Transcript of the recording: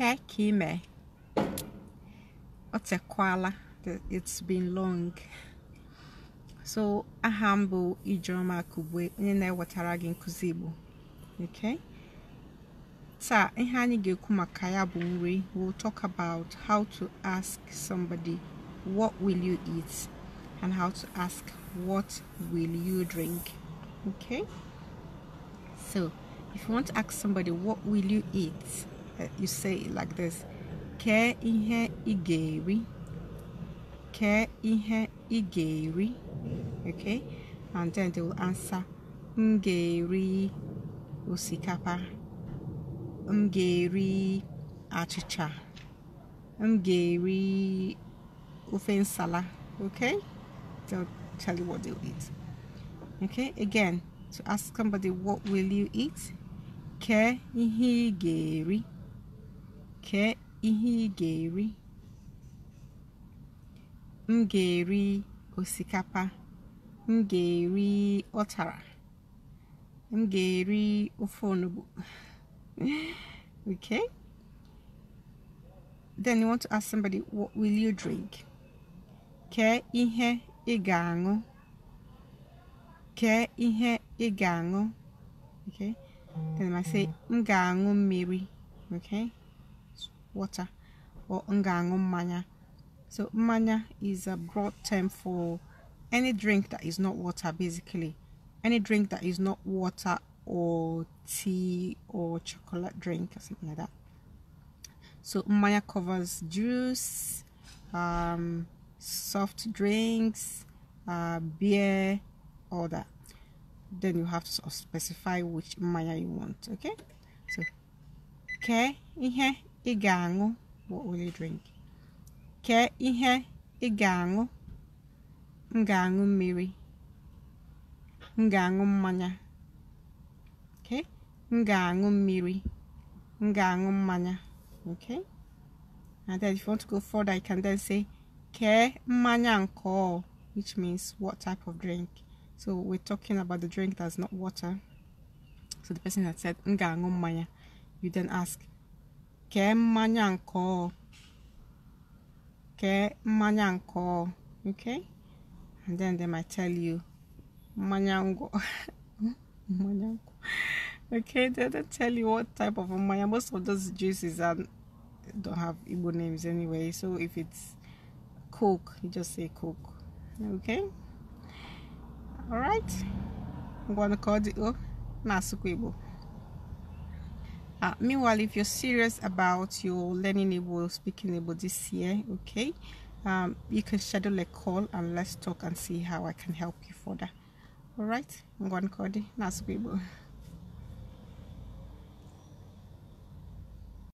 Kee ka ị It's been long. So a humble bụ Kubwe. Akugbe onye na Okay? So, ihe anyị ga-ekwu maka nri. We'll talk about how to ask somebody what will you eat and how to ask what will you drink. Okay? So if you want to ask somebody what will you eat? you say it like this ke ihe igeri ke ihe igeri okay and then they will answer m usikapa." eri osikapa m ga achịcha okay they'll tell you what they'll eat okay again to ask somebody what will you eat ke ihe igeri Kee ihe ị ga-eri. M ga-eri osikapa. M ga-eri otara, M ga-eri ofe onugbu. okay? Then you want to ask somebody, what will you drink? Kee ihe ị ga-aṅụ. Kee ihe ị ga-aṅụ. Okay? Then I say, m ga-aṅụ mmiri. Okay? water or ngangu manya. So manya is a broad term for any drink that is not water basically. Any drink that is not water or tea or chocolate drink or something like that. So manya covers juice, um, soft drinks, uh, beer, all that. Then you have to sort of specify which manya you want, okay? So, okay, here ị ga-aṅụ what will you drink kee ihe ị ga-aṅụ m ga-aṅụ mmiri m ga-aṅụ mmanya okay m ga-aṅụ mmiri m ga-aṅụ mmanya okay and then if you want to go further you can then say k e mmanya nke which means what type of drink so we're talking about the drink that's not water so the person that said ngango ga mmanya you then ask kee mmanya mmanya okay and then they might tell you Manyango, Manyango. okay they don't tell you what type of manya. most of those juices are don't have Igbo names anyway so if it's coke you just say coke okay all i right, I'm gonna oh, call the asukwa Igbo uh, meanwhile if you're serious about your learning able speaking able this year okay um, you can schedule a call and let's talk and see how I can help you further all right right, I'm going to na sugbo